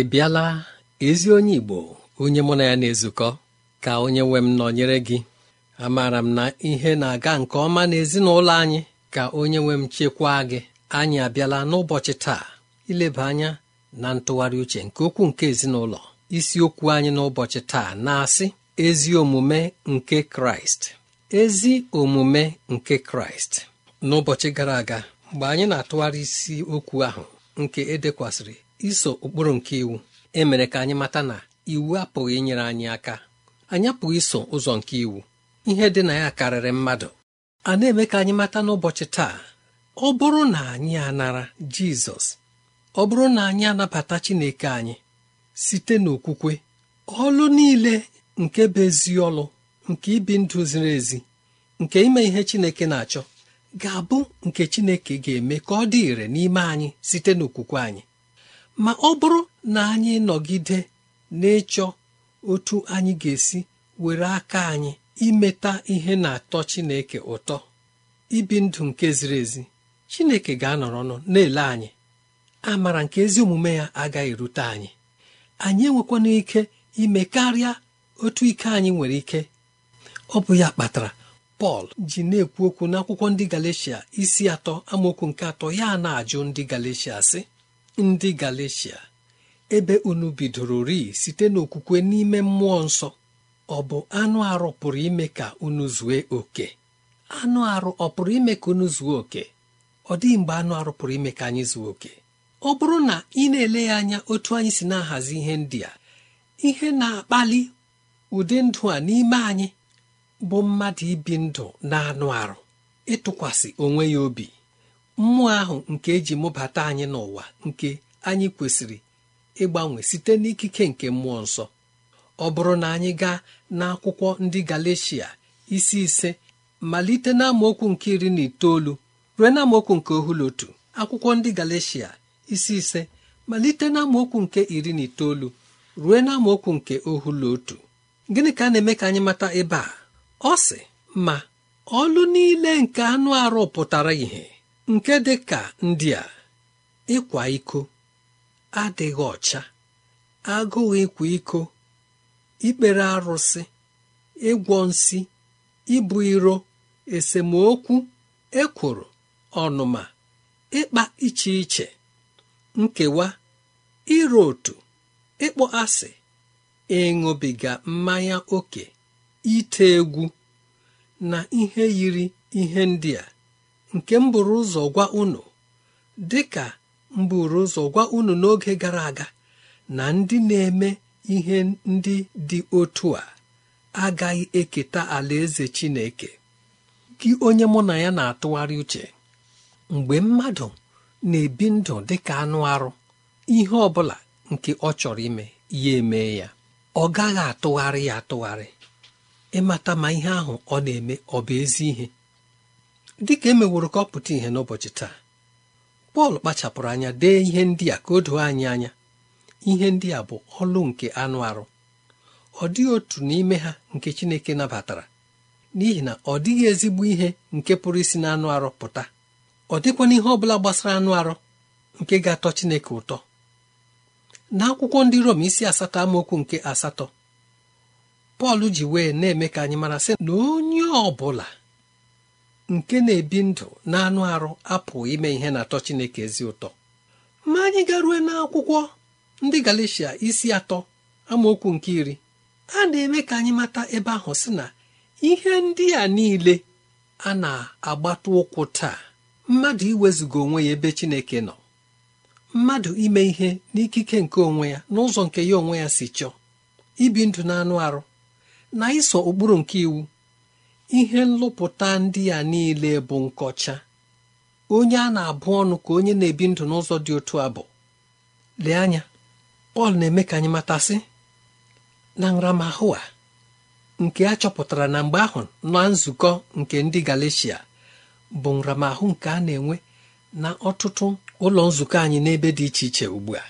ị bịala ezi onye Igbo onye mụ na ya na-ezukọ ka onye nwe m nọnyere gị amaara m na ihe na-aga nke ọma n'ezinụlọ anyị ka onye nwe m chekwaa gị anyị abịala n'ụbọchị taa ileba anya na ntụgharị uche nke okwu nke ezinụlọ isiokwu anyị n'ụbọchị taa na-asị ezi omume nke Kraịst ezi omume nke Kraịst n'ụbọchị gara aga mgbe anyị na-atụgharị isi okwu ahụ nke edekwasịrị iso ụkpụrụ nke iwu emere ka anyị mata na iwu apụghị inyere anyị aka anyị apụghị iso ụzọ nke iwu ihe dị na ya karịrị mmadụ a na-eme ka anyị mata n'ụbọchị taa ọ bụrụ na anyị anara Jizọs ọ bụrụ na anyị anabata Chineke anyị site n'okwukwe ọlụ niile nke bụ ezi ọlụ nke ibi ndụ ziri ezi nke ime ihe Chineke na-achọ ga-abụ nke Chineke ga-eme ka ọ dị ire n'ime anyị site n'okwukwe anyị ma ọ bụrụ na anyị nọgide na-ịchọ otu anyị ga-esi were aka anyị imeta ihe na-atọ Chineke ụtọ ibi ndụ nke ziri ezi Chineke ga-anọrọ ọnụ na-ele anyị amara nke ezi omume ya agaghị erute anyị anyị enwekwana ike ime karịa otu ike anyị nwere ike ọ bụ ya kpatara Pọl ji na-ekwu okwu n'akwụkwọ ndị Galeshia isi atọ amaokwu nke atọ ya na-ajụ ndị Galeshia sị ndị Galeshia ebe unu bidoro rii site n'okwukwe n'ime mmụọ nsọ ọ bụ anụ arụ pụrụ ime ka unu zue oke anụ arụ ọ pụrụ ime ka unu zuo oke ọ dịghị mgbe anụ arụ pụrụ ime ka anyị zuo oke ọ bụrụ na ị na-ele ya anya otu anyị si na-ahazi ihe ndị a ihe na-akpali ụdị ndụ a n'ime anyị bụ mmadụ ibi ndụ na anụ arụ ịtụkwasị onwe ya obi mmụọ ahụ nke eji mụbata anyị n'ụwa nke anyị kwesịrị ịgbanwe site n'ikike nke mmụọ nsọ ọ bụrụ na anyị gaa n'akwụkwọ ndị Galeshia isi ise malite n'amaokwu nke iri na itoolu ruo n'amaokwu nke otu akwụkwọ ndị Galeshia isi ise malite n'amaokwu nke iri na itoolu ruo nke gịnị ka a na-eme ka anyị mata ebe a ọ sị ma ọlụ niile nke anụ arụ pụtara ìhè nke dị ka ndị a ịkwa iko adịghị ọcha agụụ ịkwa iko ikpere arụsị ịgwọ nsi ibu iro esemokwu ekworo ọnụma ịkpa iche iche nkewa ịrụ otu ịkpọ asị ịṅụbiga mmanya ókè ite egwu na ihe yiri ihe ndị a nke m ụzọ gwa unu dịka ka ụzọ gwa unu n'oge gara aga na ndị na-eme ihe ndị dị otu a agaghị eketa alaeze Chineke gị onye mụ na ya na-atụgharị uche mgbe mmadụ na-ebi ndụ dịka anụ arụ ihe ọ bụla nke ọ chọrọ ime ya eme ya ọ gaghị atụgharị ya atụgharị ịmata ma ihe ahụ ọ na-eme ọ bụ ezi ihe dị ka emeworo ka ọ pụta ìhè n'ụbọchị taa Pọl kpachapụrụ anya dee ihe ndị a ka o doo anyị anya ihe ndị a bụ ọlụ nke anụ arụ ọ dịghị otu n'ime ha nke Chineke nabatara n'ihi na ọ dịghị ezigbo ihe nke pụrụ isi n'anụ arụ pụta ọ dịkwa ihe ọ bụla gbasara anụ arụ nke ga-atọ Chineke ụtọ n'akwụkwọ ndị Rom isi asatọ amaokwu nke asatọ Pọl ji wee na-eme ka anyị mara sị na onye ọ bụla nke na-ebi ndụ na-anụ arụ apụ ime ihe na-atọ Chineke ezi ụtọ ma anyị garue n'akwụkwọ ndị Galeshia isi atọ amaokwu nke iri a na-eme ka anyị mata ebe ahụ sị na ihe ndị a niile a na-agbata ụkwụ taa mmadụ iwezuga onwe ya ebe Chineke nọ mmadụ ime ihe n'ikike nke onwe ya n'ụzọ nke ya onwe ya si chọọ ibi ndụ na anụ arụ na iso ụkpụrụ nke iwu ihe nlụpụta ndị a niile bụ nkọcha onye a na-abụ ọnụ ka onye na-ebi ndụ n'ụzọ dị otu a bụ lee anya Pọl na-eme ka anyị matasị na nramahụ a nke a chọpụtara na mgbe ahụ na nzukọ nke ndị Galeshia bụ nramahụ nke a na-enwe na ọtụtụ ụlọ nzukọ anyị n'ebe dị iche iche ugbu a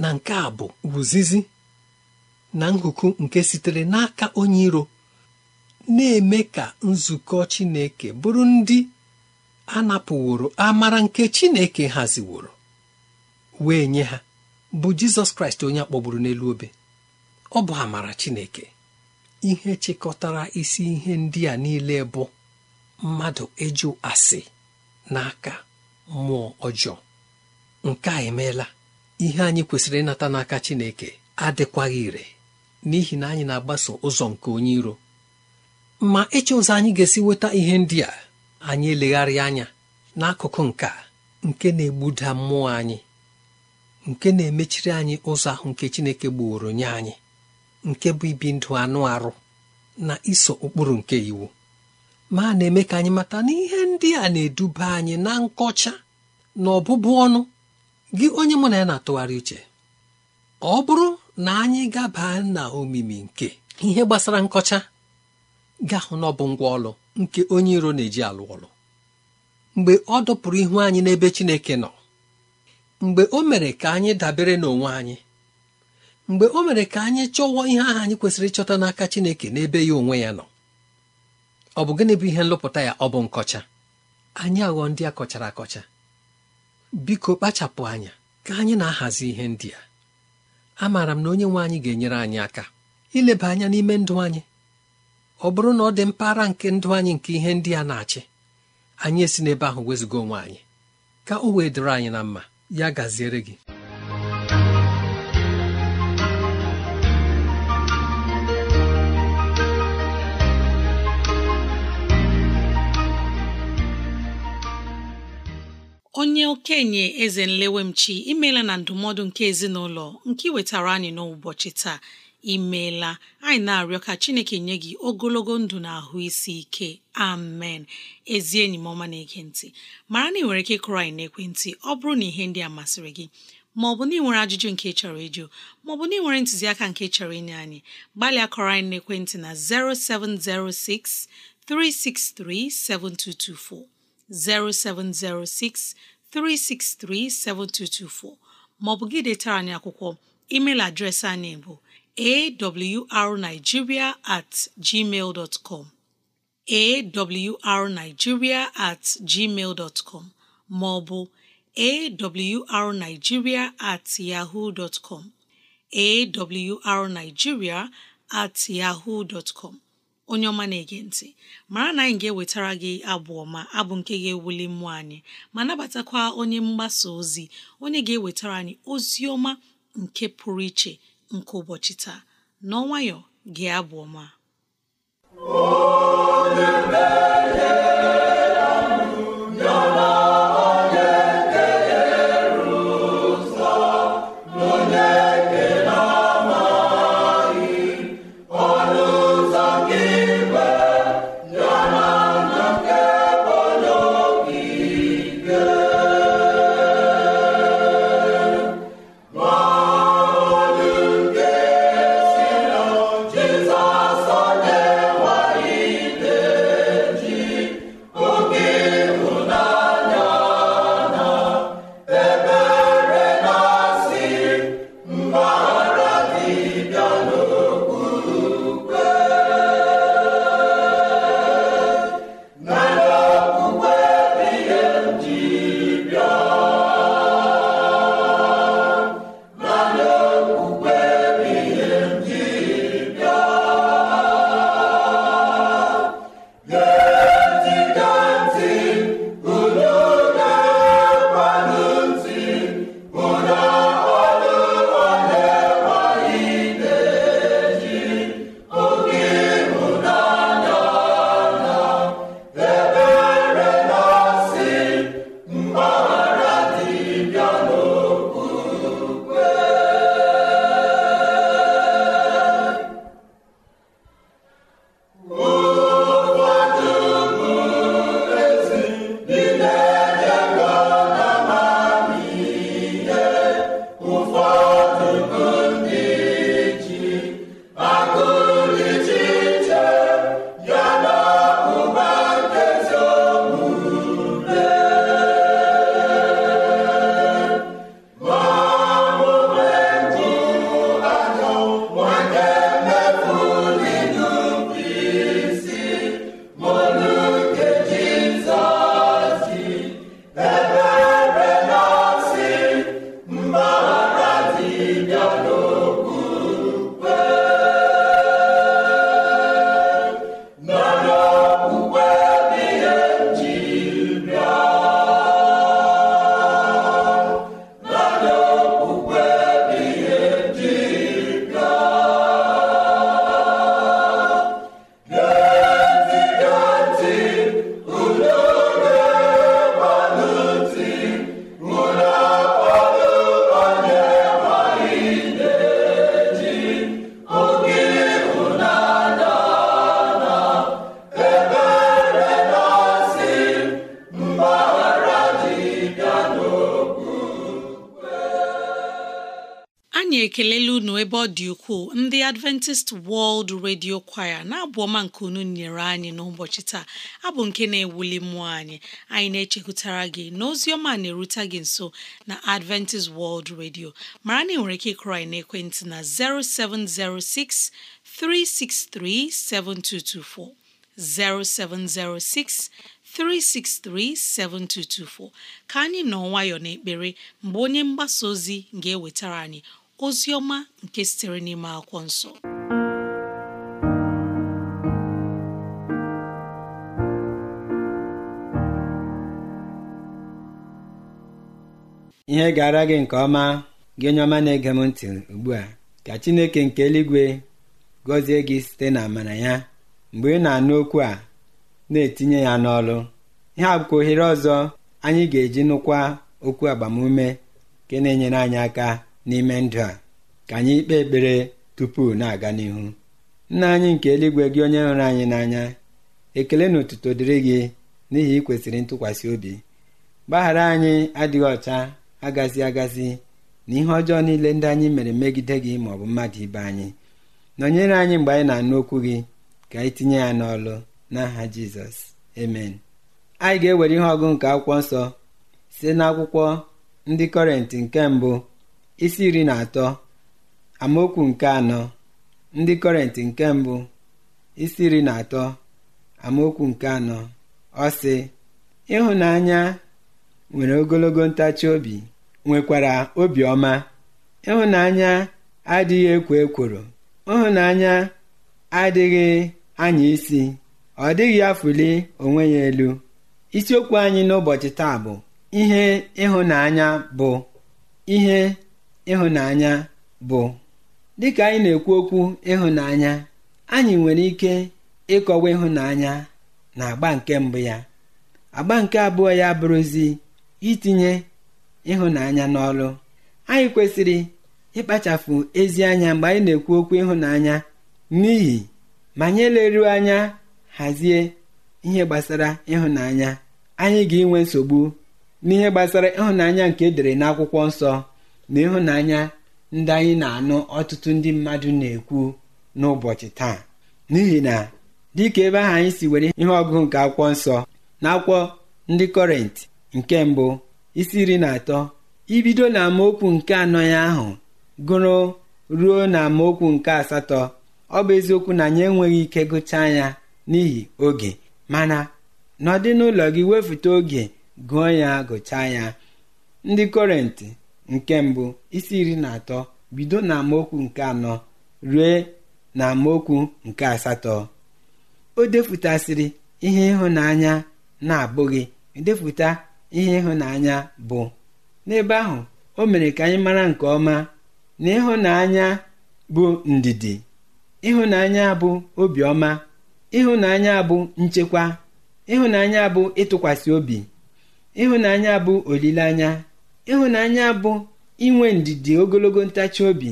na nke a bụ wuzizi na nhuku nke sitere n'aka onye iro na-eme ka nzukọ Chineke bụrụ ndị a napụworo amara nke Chineke haziworo wee nye ha bụ Jizọs Kraịst onye akpọgburu n'elu obe ọ bụ amara Chineke ihe chịkọtara isi ihe ndị a niile bụ mmadụ ịjụ asị n'aka mmụọ ọjọọ nke a emeela ihe anyị kwesịrị ịnata n'aka Chineke adịkwaghị ire n'ihi na anyị na-agbaso ụzọ nke onye iro ma ịchọ ụzọ anyị ga-esi nweta ihe ndị a anyị elegharị anya n'akụkụ nka nke na-egbuda mmụọ anyị nke na-emechiri anyị ụzọ ahụ nke Chineke gbuoro nye anyị nke bụ ibi ndụ anụ arụ na iso ụkpụrụ nke iwu ma na-eme ka anyị mata na ihe ndị a na-eduba anyị na nkọcha na ọbụbụ ọnụ gị onye mụ na ya na-atụgharị uche ọ bụrụ na anyị gaba na omimi nke ihe gbasara nkọcha gahụ na ọ bụ ngwa ọlụ nke onye iro na-eji alụ ọlụ mgbe ọ dọpụrụ ihu anyị n'ebe Chineke nọ mgbe o mere ka anyị dabere n'onwe anyị mgbe o mere ka anyị chọwọ ihe ahụ anyị kwesịrị ịchọta n'aka Chineke n'ebe ya onwe ya nọ ọ bụ gịnị bụ ihe nlụpụta ya ọ bụ nkọcha anyị aghọ ndị a kọchara akọcha biko kpachapụ anya ka anyị na-ahazi ihe ndị a amaara m na onye nwe anyị ga-enyere anyị aka ileba anya n'ime ndụ anyị ọ bụrụ na ọ dị mpaghara nke ndụ anyị nke ihe ndị a na-achị anyị esi n'ebe ahụ wezụga onwe anyị ka o wee dịrị anyị na mma ya gaziere gị onye okenye eze nlewemchi imeela na ndụmọdụ nke ezinụlọ nke iwetara wetara anyị n'ụbọchị taa imeela anyị na-arịọ ka chineke nye gị ogologo ndụ na ahụ isi ike amen ezi enyi m ọma na ekentị ntị mara na ị nwere ike ịkụrụ anyị n'ekwentị ọ bụrụ na ihe ndị a masịrị gị ma ọ bụ na ị nwere ajụjụ nke ị chọrọ ịjụ ma ọ bụ na ị nwere ntụziaka nke ị chọrọ inye anyị gbalịa kọrọ anyị n'ekwentị na 0706 363 7224 0706 363 7224 ma ọ bụ gị detara anyị akwụkwọ emeil adreesị anyị bụ awrnigeria at gmail dot com awrnigeria at com maọbụ awrnigeria at yahoo dot com awrnigeria at yahoo dot com onye ọma na-ege ntị mara na anyị ga-ewetara gị abụ ọma abụ nke ga-ewuli mmụọ anyị ma nabatakwa onye mgbasa ozi onye ga-ewetara anyị ozi ọma nke pụrụ iche nke ụbọchị taa n'ọnwayọ gị abụ ọma ekelela unu ebe ọ dị ukwuu ndị Adventist World Radio Choir na-abụ ọma nke unu nyere anyị n'ụbọchị taa abụ nke na-ewuli mmụọ anyị anyị na-echekwutara gị na na-erute gị nso na Adventist World Radio mara na ị nwere ike ịkụrọ anyị n'ekwentị na 0706 363 7224 0706 363-7224 ka anyị nọ nwayọọ n'ekpere mgbe onye mgbasa ozi ga-ewetara anyị ozi ọma nke sitere n'ime akwụkwọ nsọ ihe gara gị nke ọma gị onye ọma na-ege m ntị ugbu a ka Chineke nke eluigwe gọzie gị site na amara ya mgbe ị na-anụ okwu a na-etinye ya n'ọlụ ihe a ohere ọzọ anyị ga-eji nụkwa okwu agbamume nke na-enyere anyị aka n'ime ndụ a ka anyị kpee ekpere tupu na-aga n'ihu nna anyị nke eluigwe gị onye hụrụ anyị n'anya ekele na otuto dịrị gị n'ihi ikwesịrị ntụkwasị obi gbaghara anyị adịghị ọcha agazi agazi na ihe ọjọọ niile ndị anyị mere megide gị ma ọ bụ mmadụ ibe anyị nọnyere anyị mgbe anyị na-anụ okwu gị ka anyị tinye ya n'ọlụ n'aha jizọs amen anyị ga-ewere ihe ọgụ nke akwụkwọ nsọ site n'akwụkwọ ndị kọrenti nke mbụ isi iri na atọ amaokwu nke anọ ndị kọrentị nke mbụ isi iri na atọ amaokwu nke anọ ọ sị ịhụnanya nwere ogologo ntachi obi nwekwara obiọma ịhụnanya adịghị ekwo ekworo ịhụnanya adịghị anya isi ọ dịghị afụli onwe ya elu isiokwu anyị n'ụbọchị taa bụ ihe ịhụnanya bụ ihe ịhụnanya bụ dịka anyị na-ekwu okwu ịhụnanya anyị nwere ike ịkọwa ịhụnanya na agba nke mbụ ya agba nke abụọ ya bụrụzi itinye ịhụnanya n'ọrụ anyị kwesịrị ịkpachapụ ezi anya mgbe anyị na-ekwu okwu ịhụnanya n'ihi ma anyị eleruo anya hazie ihe gbasara ịhụnanya anyị ga-enwe nsogbu n'ihe gbasara ịhụnanya nke edere n'akwụkwọ nsọ n'ịhụnanya ịhụnanya ndị anyị na-anụ ọtụtụ ndị mmadụ na-ekwu n'ụbọchị taa n'ihi na dịka ebe ahụ anyị si were ihe ọgụgụ nke akwụkwọ nsọ na akwụkwọ ndị kọrent nke mbụ isi iri na atọ ibido na amaokwu nke anọ ya ahụ gụrụ ruo na amaokwu nke asatọ ọ bụ eziokwu na anyị enweghị ike gụchaa ya n'ihi oge mana n'ụlọ gị wefute oge gụọ ya gụchaa ya ndị kọrentị nke mbụ isi iri na atọ bido na amaokwu nke anọ rue na amaokwu nke asatọ o depụtasịrị ihe ịhụnanya na-abụghị edepụta ihe ịhụnanya bụ n'ebe ahụ o mere ka anyị mara nke ọma na ịhụnanya bụ ndidi ịhụnanya bụ obiọma ịhụnanya bụ nchekwa ịhụnanya bụ ịtụkwasị obi ịhụnanya bụ olileanya ịhụnanya bụ inwe ndidi ogologo ntachi obi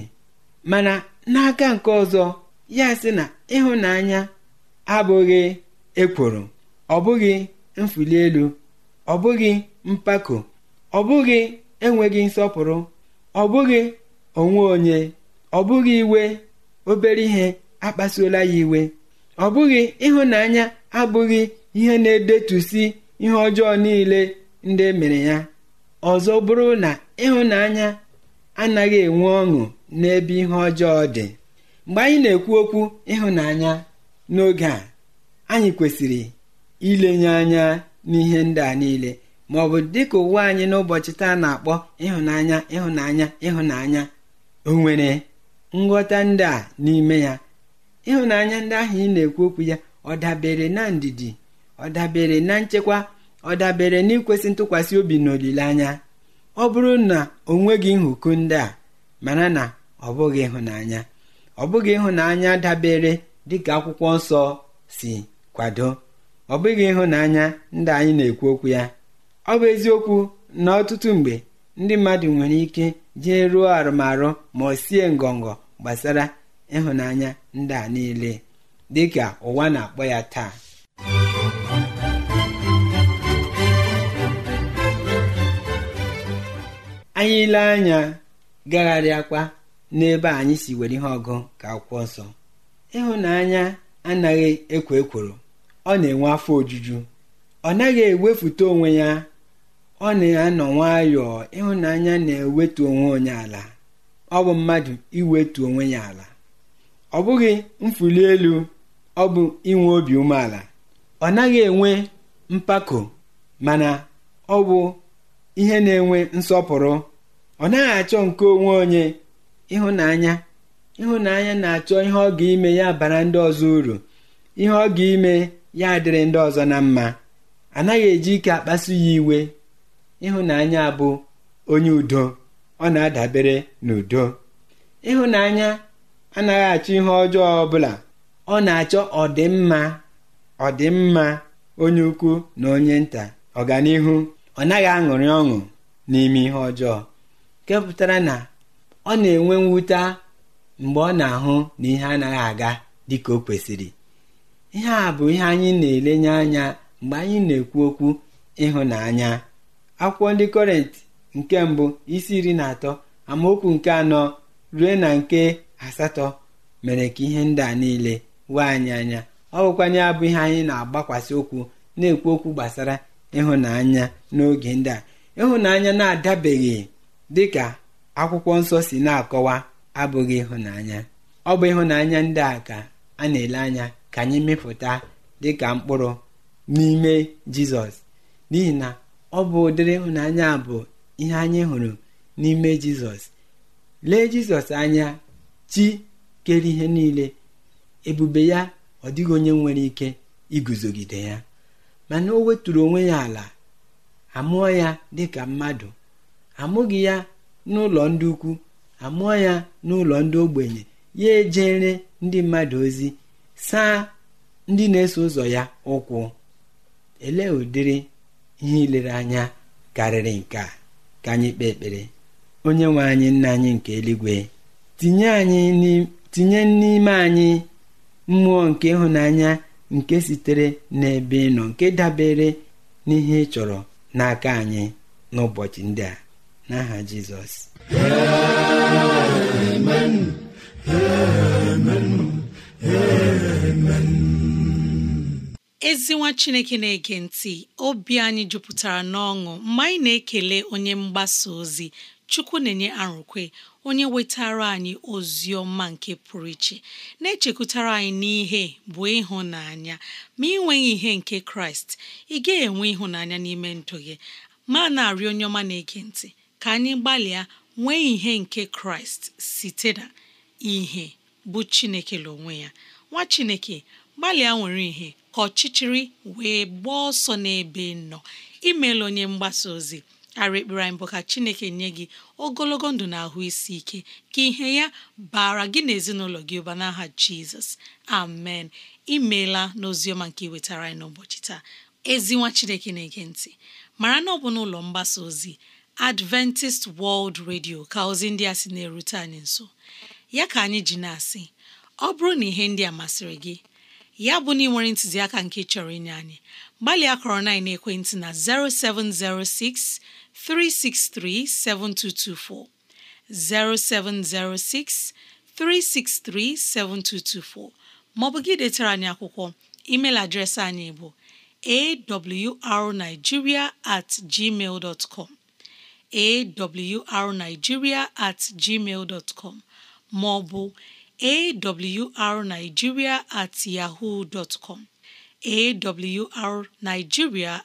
mana n'aka nke ọzọ ya sị na ịhụnanya abụghị ekworo ọ bụghị ọbụghị elu ọ bụghị mpako ọ bụghị enweghị nsọpụrụ ọ bụghị onwe onye ọ bụghị iwe obere ihe akpasuola ya iwe ọ ịhụnanya abụghị ihe na-edetusi ihe ọjọọ niile ndị emere ya ọzọ bụrụ na ịhụnanya anaghị enwe ọṅụ n'ebe ihe ọjọọ dị mgbe anyị na-ekwu okwu ịhụnanya n'oge a anyị kwesịrị ilenye anya n'ihe ndị a niile ma ọ bụ dịka ụwa anyị n'ụbọchị taa na-akpọ ịhụnanya ịhụnanya ịhụnanya o nwere nghọta ndị a n'ime ya ịhụnanya ndị ahụ ị na-ekwu okwu ya ọ dabere na ndidi ọ dabere na nchekwa ọ dabere n'ikwesị ntụkwasị obi na olileanya ọ bụrụ na o nweghị nhụku ndị a mana na ọ bụghị ịhụnanya ọ bụghị ịhụnanya dabere dịka akwụkwọ nsọ si kwado ọ bụghị ịhụnanya ndị anyị na-ekwu okwu ya ọ bụ eziokwu na ọtụtụ mgbe ndị mmadụ nwere ike jee ruo arụmarụ ma ọ sie ngọngọ gbasara ịhụnanya ndị a niile dịka ụwa na-akpọ ya taa anyị ile anya gagharịakwa n'ebe anyị si were ihe ọgụ ka akwụkwọ nsọ ịhụnanya anaghị ekwo ekworo ọ na-enwe afọ ojuju ọ naghị ewefute onwe ya ọ na-anọ nwayọọ ịhụnanya na-ewetu onwe onye ala ọ bụ mmadụ iwetu onwe ya ala ọ bụghị mfuli elu ọ bụ inwe obi umeala ọ naghị enwe mpako mana ọ bụ ihe na-enwe nsọpụrụ ọ naghị achọ nke onwe onye ịhụnanya ịhụnanya na-achọ ihe ọ ga-ime ya bara ndị ọzọ uru ihe ọ ga-ime ya adịrị ndị ọzọ na mma anaghị eji ike akpasu ya iwe ịhụnanya bụ onye udo ọ na-adabere n'udo ịhụnanya anaghị achọ ihe ọjọọ ọbụla ọ na-achọ ọdịmma ọdịmma onye ukwu na onye nta ọganihu ọ naghị aṅụrị ọṅụ n'ime ihe ọjọọ nke pụtara na ọ na-enwe mwute mgbe ọ na-ahụ na ihe anaghị aga dịka o kwesịrị ihe a bụ ihe anyị na-elenye anya mgbe anyị na-ekwu okwu ịhụnanya akwụkwọ ndị kọrentị nke mbụ isi iri na atọ amaokwu nke anọ rue na nke asatọ mere ka ihe ndị a niile wee anyị anya ọ bụkwanye abụ ihe anyị na-agbakwasị okwu na-ekwu okwu gbasara ịhụnanya n'oge ndị a ịhụnanya na-adabeghị dị ka akwụkwọ nsọ si na-akọwa abụghị ịhụnanya ọ bụ ịhụnanya ndị a ka a na-ele anya ka anyị mịpụta dịka mkpụrụ n'ime jizọs n'ihi na ọ bụ ụdịrị ịhụnanya bụ ihe anyị hụrụ n'ime jizọs lee jizọs anya chi kere ihe niile ebube ya ọ dịghị onye nwere ike iguzogide ya mana o weturu onwe ya ala amụọ ya dịka mmadụ amụghị ya n'ụlọ ndị ukwu amụọ ya n'ụlọ ndị ogbenye ya ejere ndị mmadụ ozi saa ndị na-eso ụzọ ya ụkwụ ele ụdịrị ihe ilere anya karịrị nke a ka anyị kpee ekpere onye nwe anyị nna anyị nke eluigwe tinye n'ime anyị mmụọ nke ịhụnanya nke sitere n'ebe ị nke dabere n'ihe ị chọrọ n'aka anyị n'ụbọchị ndị a n'aha jizọs chineke na-ege ntị obi anyị jupụtara n'ọṅụ mgbe anyị na-ekele onye mgbasa ozi chukwu na-enye arụkwe onye wetara anyị ozi ọma nke pụrụ iche na-echekwutara anyị n'ihe bụ ịhụnanya ma ị nweghị ihe nke kraịst ị ga enwe ịhụnanya n'ime ndụ gị ma na-arịọ onye ọma na-ege ntị ka anyị gbalịa nwee ihe nke kraịst site na ihe bụ chineke n'onwe ya nwa chineke gbalịa nwere ihe ka ọchịchịrị wee gbaa ọsọ n'ebe nọ imeela onye mgbasa ozi ara ekpere anyị bụ ka chineke nye gị ogologo ndụ na ahụ isi ike ka ihe ya bara gị na ezinụlọ gị ụba n'aha jizọs amen imeela n'oziọma nke iwetara anyị n'ụbọchị taa ezinwa chineke na-ege ntị mara na ọ bụ n'ụlọ mgbasa ozi adventist world radio ka ozi ndị a sị na-erute anyị nso ya ka anyị ji na-asị ọ bụrụ na ihe ndị a masịrị gị ya bụ na ị nwere ntụziaka nke chọrọ inye anyị gbalịa kọrọ na ekwentị na 0706 363 7224 0706 363 7224 maọbụ gị detara anyị akwụkwọ email adreesị anyị bụ awrnigeria at gmail dot com arigiria at gmail bụ com maọbụ ma at yahoo com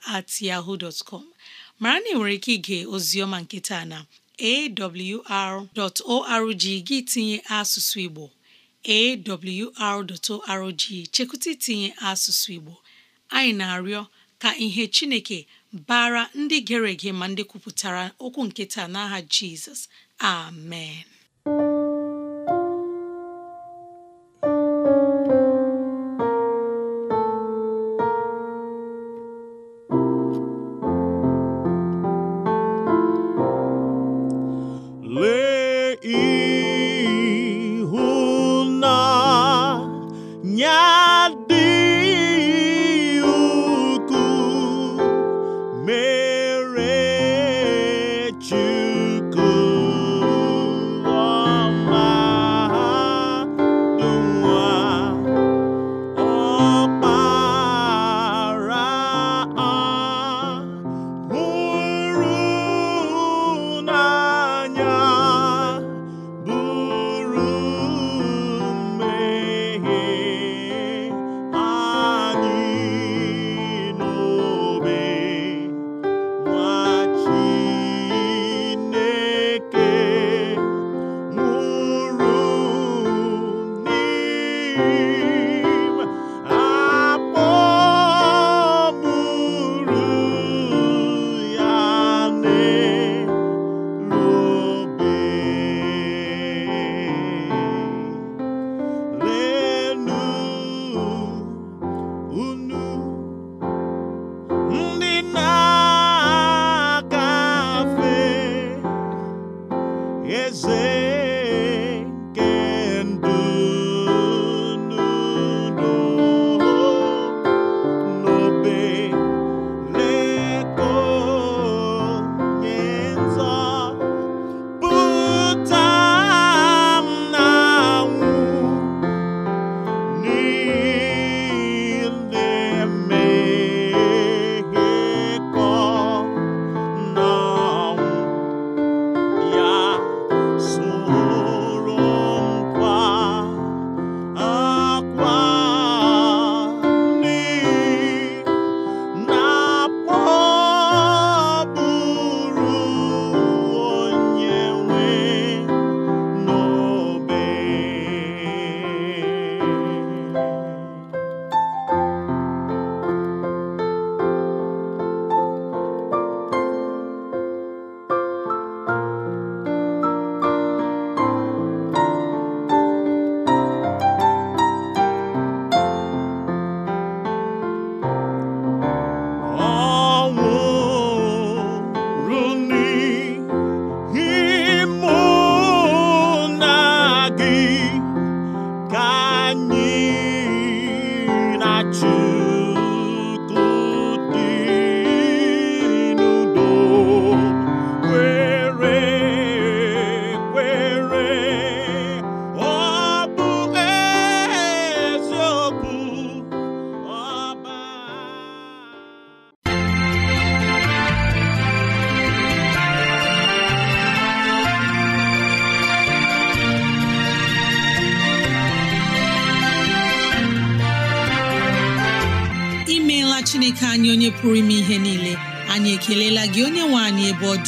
at yahoo com mara na ị nwere ike ige ozioma nkịta na awr.org gị tinye asụsụ Igbo awr.org chekwụta itinye asụsụ Igbo anyị na-arịọ ka ihe Chineke bara ndị gere ege ma ndị kwupụtara okwu nkịta n'aha jizọs amen